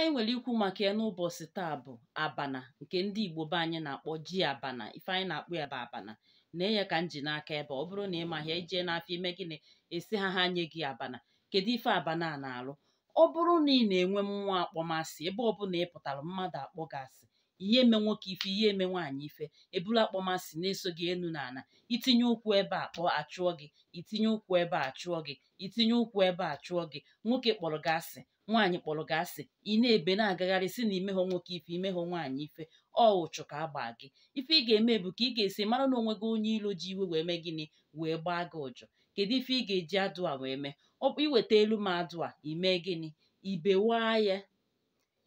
anyị nwere ikwu maka ya n'ụbọchị taa bụ abana nke ndị Igbo be anyị na-akpọ ji abana ife anyị na akpụ ya bụ abana na ya ka m ji n'aka ebe ọ bụrụ na ị mahịa ijee n'afọ ime gịnị esi ha ha nye gị abana kedu ife abana a na-alụ ọ bụrụ na ị na-enwe mmụọ akpọmasị ebe ọ bụla ị pụtara mmadụ akpọ gị asị ihe eme nwoke ife ihe eme nwaanyị ife ebula akpọmasị na-eso gị enu na itinye ụkwụ ebe a kpọọ achụọ gị itinye ụkwụ ebe a chụọ gị itinye ụkwụ ebe a chụọ gị nwoke kpọrọ gị asị nwaanyị kpọrọ gị asị ị na-ebe na-agagharị si na imehọ nwoke ife imehọ nwaanyị ife ọ ụchụ ka a gbaa gị ife ị ga-eme bụ ka ị ga-esi mara na onwe gị onye ilo ji iwe wee mee gịnị wee gbaa gị ụjọ kedu ife ị ga-eji adụ a wee mee ọ iweta elu m adụ a ime gịnị ibewaa ya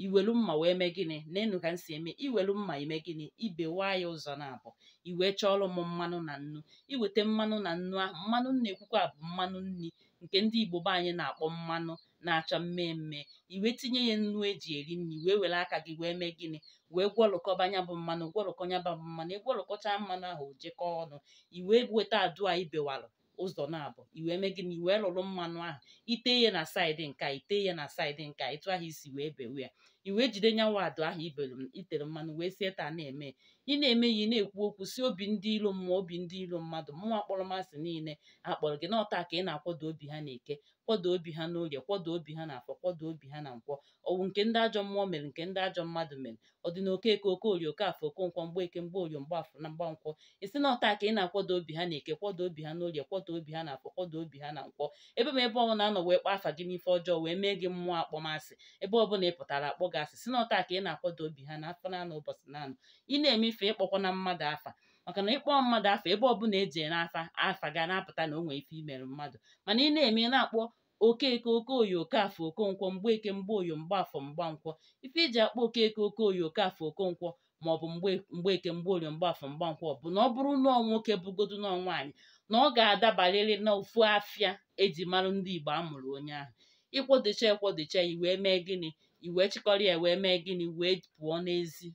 iwelu mma wee mee gịnị n'enu ka m si eme iwelu mma ime gịnị ibewa ya ụzọ na-abụ iwee chọọrọ m mmanụ na nnu iweta mmanụ na nnu ahụ mmanụ na-ekwukwa bụ mmanụ nri nke ndị Igbo be anyị na-akpọ mmanụ na-acha mmemme iwe tinye ya nnu eji eri nri wee were aka gị wee mee gịnị wee gwọrọkọba nya bụ mmanụ gwọrọkọ nya bụ mmanụ ịgwọrọkọcha mmanụ ahụ jekọọ ọnụ iwee weta adụ a ibewalụ ụzọ na-abụ iwee mee gịnị iwee lụrụ mmanụ ahụ ite ihe na saịdị nka ite ihe na saịdị nka ịtụ ahụ isi wee bewe ya i wee jide nyanwa ahụ ibelu itere mmanụ wee sie taa na-eme ị na-eme ya ị na-ekwu okwu si obi ndị ilo mmụọ obi ndị ilo mmadụ mmụọ akpọrọmasị niile akpọrọ gị n'ọta ka ị na-akwado obi ha na-eke kwado obi ha n'orie kwado obi ha na afọ kwado obi ha na nkwọ ọwụ nke ndị ajọ mmụọ mere nke ndị ajọ mmadụ mere ọ dị na okeke okorie okafọ mgbe mgbeeke mgbe afọ na mgbankwọ isi na ọta ka ị na-akwado obi ha na-eke kwado obi ha n'orie kwado obi ha na afọ kwado obi ha na nkwọ ebe m ebe ọbụla anọ wee kpa afa gị n'ife ọjọọ wee mee gị mmụọ akpọmasị ebe ọbụla ị pụtara akpọ gị asị si na ọta ka ị na-akwado obi ha n'afọ afọ naanị ụbọchị naanị ị na-eme ife ịkpọkwa na mmadụ afa maka na ịkpọ mmadụ afa ebe ọ bụla eji n'afa afa ga na-apụta na o nwee ife imere mmadụ mana ị na-eme na-akpọ okeke okoye okafọ okonkwo mgbeke mgbaoyo mgbafọ mgbankwọ ife iji e akpọ okeke okoye okafọ okonkwo ma ọ bụ mgbeke mgbaoyo mgba mgbankwọ bụ na ọ bụrụ nọọ nwoke bụgodu nọọ nwaanyị na ọ ga-adabarịrị n'ofu afịa eji mara ndị Igbo a mụrụ onye ahụ ịkwodocha ekwodocha wee mee gịnị iwee chịkọrọ ya wee mee gịnị wee pụọ n'ezi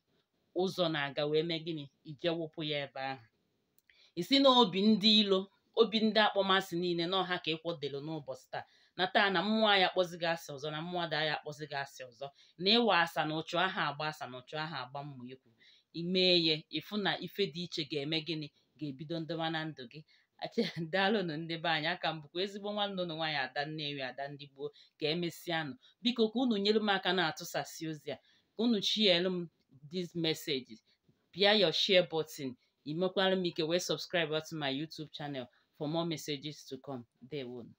ụzọ na-aga wee mee gịnị ije wụpụ ya ebe ahụ isi na obi ndị ilo obi ndị akpọmasị niile na ọha ka ịkwọdelu n'ụbọchị taa na taa na mmụọ ya akpọzi gị asị ọzọ na mmụọ daa ya akpọzi gị asị ọzọ na ịwa asa na ụchụ aha agba asa na ụchụ aha agba mmụ ikwu imee ya ịfụ na ife dị iche ga-eme gịnị ga-ebido ndịwa na ndụ gị achedalụnụ ndị be anyị aka m bụkwa ezigbo nwanne ụnụ nwaanyị ada nnewi ada ndị gboo ka emesịanụ biko ka unu nyere m aka na-atụsasị ozi a ka unu chielu m dis message bia your share botin imekwara m ike wee subscribe to my YouTube channel for more messages to come. Dewonu.